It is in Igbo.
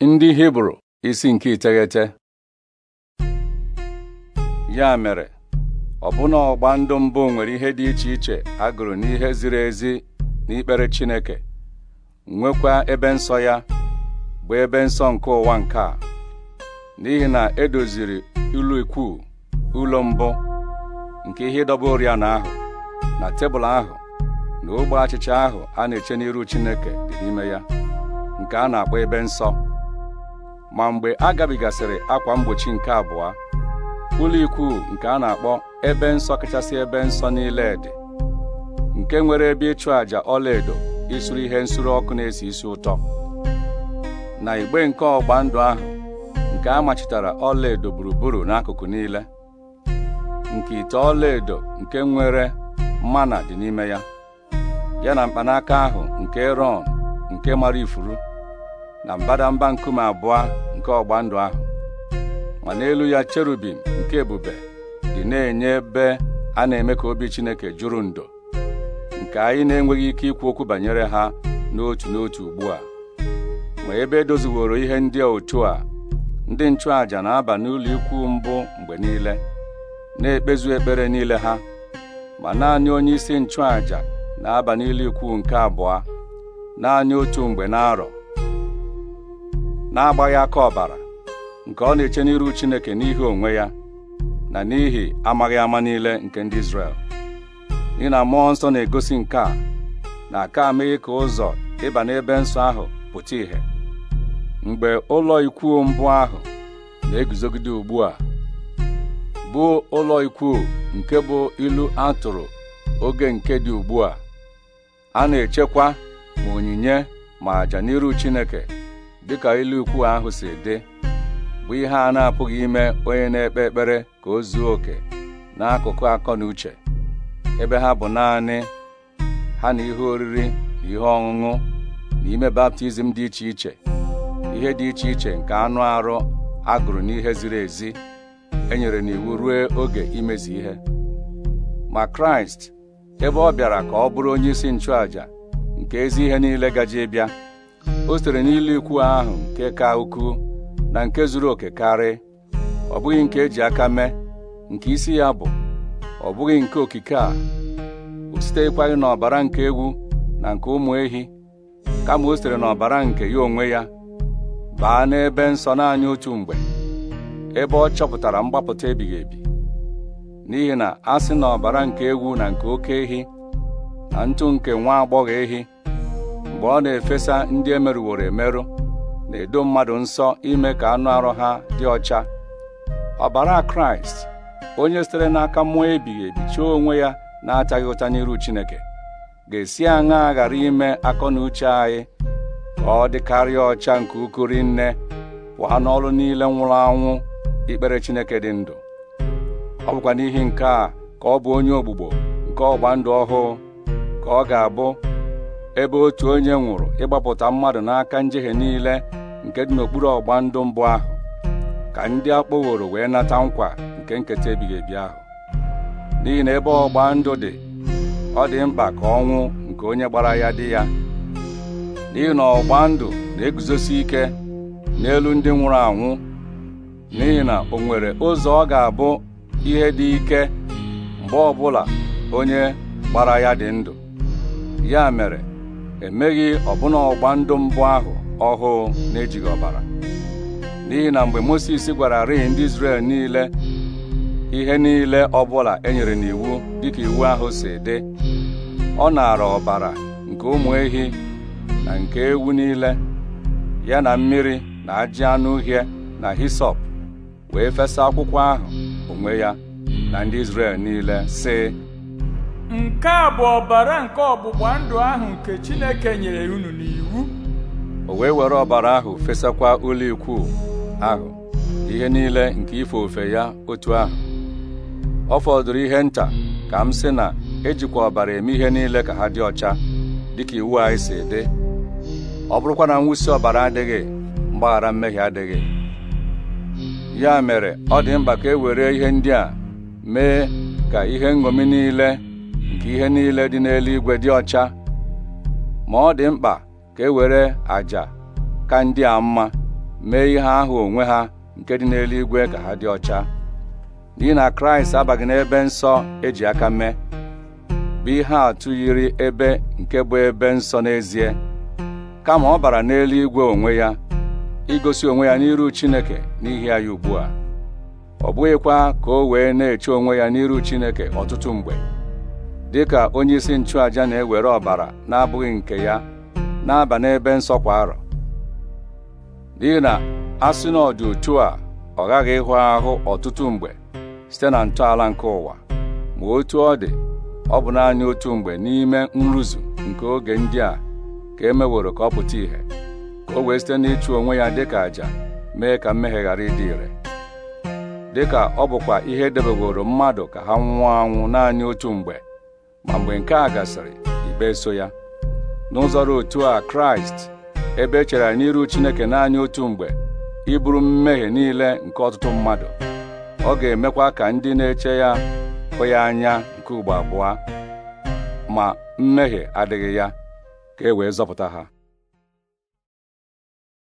ndị hibru isi nke iteghete ya mere ọbụna ọgba ndụ mbụ nwere ihe dị iche iche agụrụ n'ihe ziri ezi n'ikpere chineke nwekwa ebe nsọ ya bụ ebe nsọ nke ụwa nke a n'ihi na edoziri ụlọ ikwu ụlọ mbụ nke ihe ịdọba oriọna ahụ na tebụl ahụ na ogbe achịcha ahụ a na-eche n'iru chineke dị n'ime ya nke a na-akpọ ebe nsọ ma mgbe a gabigasịrị akwa mgbochi nke abụọ ụlọ ikwu nke a na-akpọ ebe nsọ kachasị ebe nsọ niile dị nke nwere ebe ịchụ àjà ọlaedo isuru ihe nsuru ọkụ na-esi isi ụtọ na igbe nke ọgba ndụ ahụ nke a machitara ọlaedo gburugburu n'akụkụ niile nke ite ọlaedo nke nwere mana dị n'ime ya ya na mkpanaka ahụ nke Ron nke mara ifuru na mbadamba nkume abụọ nke ọgba ndụ ahụ ma n'elu ya cherubim nke ebube dị na-enye ebe a na-eme ka obi Chineke juru ndo nke anyị na-enweghị ike ikwu okwu banyere ha n'otu n'otu ugbu a ma ebe edoziworo ihe ndị otu a ndị nchụàjà na-aba n'ụlọ ikwu mbụ mgbe niile na-ekpezu ekpere niile ha ma naanị onye isi nchụàja na-aba n'ụlọ ikwu nke abụọ naanị otu mgbe na-arọ. na-agbaghị aka ọbara nke ọ na-eche n'iru Chineke n'ihi onwe ya na n'ihi amaghị ama niile nke ndị Izrel ị na amụọ nsọ na-egosi nke a na aka amaghị ka ụzọ ịba n'ebe nsọ ahụ pụta ìhè mgbe ụlọ ikwu mbụ ahụ na-eguzogide ugbu a bụ ụlọ ikwu nke bụ ilu a tụrụ oge nke dị ugbu a a na-echekwa ma onyinye ma àjà n'iru Chineke dịka ilu ukwu ahụ si dị bụ ihe a na-apụghị ime onye na-ekpe ekpere ka o zuo oke n'akụkụ akọ na uche ebe ha bụ naanị ha na ihe oriri na ihe ọṅụṅụ na ime baptizim dị iche iche ihe dị iche iche nke anụ arụ agụrụ n'ihe ziri ezi enyere n'iwu ruo oge imezi ihe ma Kraịst ebe ọ bịara ka ọ bụrụ onye isi nchụàja nke ezi ihe niile gaje bịa o sitere n'ilu ikwu ahụ nke ka ukwuu na nke zuru oke karị ọ bụghị nke eji aka mee nke isi ya bụ ọ bụghị nke okike a o sitekwaghị n'ọbara nke egwu na nke ụmụ ehi kama o sitere n'ọbara nke ya onwe ya baa n'ebe nsọ naanị otu mgbe ebe ọ chọpụtara mgbapụta ebighị ebi n'ihi na a sị na ọbara nke egwu na nke oke ehi na ntụ nke nwa agbọghọ ehi mgbe ọ na-efesa ndị emerụworo emerụ na-edo mmadụ nsọ ime ka anụ arụ ha dị ọcha ọbara kraịst onye sitere n'aka mmụọ ebighị ebi onwe ya na-ataghị ụta n'iru chineke ga-esi aṅa ghara ime akọ na uche anyị ka ọ dịkarịa ọcha nke ukwu rinne pụọ n'ọrụ niile nwụrụ anwụ ikpere chineke dị ndụ ọ bụkwa n'ihi nke a ka ọ bụ onye ogbugbo nke ọgba ndụ ọhụụ ka ọ ga-abụ ebe otu onye nwụrụ ịgbapụta mmadụ n'aka njehie niile nke dị n'okpuru ọgba ndụ mbụ ahụ ka ndị akpọworo wee nata nkwa nke nketa ebighị ebi ahụ n'ihi na ebe ọgba ndụ dị ọ dị mkpa ka ọnwụ nke onye gbara ya dị ya n'ihi na ọgba ndụ na-eguzosi ike n'elu ndị nwụrụ anwụ n'ihi na o nwere ụzọ ọ ga-abụ ihe dị ike mgbe ọbụla onye gbara ya dị ndụ ya mere emeghị ọbụna ọgba ndụ mbụ ahụ ọhụụ na-ejighị ọbara n'ihi na mgbe Mosis gwara rịị ndị Izrel niile ihe niile ọbụla e nyere n'iwu dịka iwu ahụ si dị ọ naara ọbara nke ụmụ ehi na nke ewu niile ya na mmiri na ajị anụ uhie na hisop wee fesa akwụkwọ ahụ onwe ya na ndị Izrel niile sị nke a bụ ọbara nke ọgbụgba ndụ ahụ nke Chineke nyere unu n'iwu o wee were ọbara ahụ fesakwa ụlọ ikwu ahụ ihe niile nke ife ofe ya otu ahụ ọ fọdụrụ ihe nta ka m sị na ejikwa ọbara eme ihe niile ka ha dị ọcha dịka iwu anyị si dị ọ bụrụkwa na mwụsi ọbara adịghị mgbaghara mmehie adịghị ya mere ọ dị mkpa ka e were ihe ndị a mee ka ihe nṅomi niile nke ihe niile dị n'eluigwe dị ọcha ma ọ dị mkpa ka e were àjà ka ndị a mma mee ihe ahụ onwe ha nke dị n'eluigwe ka ha dị ọcha n'ihi na kraịst abaghị n'ebe nsọ eji aka mee bụ ihe atụ yiri ebe nke bụ ebe nsọ n'ezie kama ọ bara n'eluigwe onwe ya igosi onwe ya n'iru chineke n'ihi ya ugbu a ọ bụghịkwa ka o wee na-eche onwe ya n'iru chineke ọtụtụ mgbe dịka onye isi nchụaja na-ewere ọbara na-abụghị nke ya na-aba n'ebe nsọ kwa arọ n'ihi na asị na ọ otu a ọ ghaghị ịhụ ahụ ọtụtụ mgbe site na ntọala nke ụwa ma otu ọ dị ọ bụ naanị otu mgbe n'ime nrụzu nke oge ndị a ka e meworo ka ọ pụta ìhè ka o wee site n'ịchụ onwe ya dịka àjà mee ka mmehie ghara ịdị ire dịka ọ bụkwa ihe edebeworo mmadụ ka ha nwụọ anwụ naanị otu mgbe ma mgbe nke a gasịrị igbe so ya n'ụzọrọ otu a kraịst ebe echere n'iru chineke naanị otu mgbe iburu mmehie niile nke ọtụtụ mmadụ ọ ga-emekwa ka ndị na-eche ya hụ ya anya nke ugbo abụọ ma mmehie adịghị ya ka e wee zọpụta ha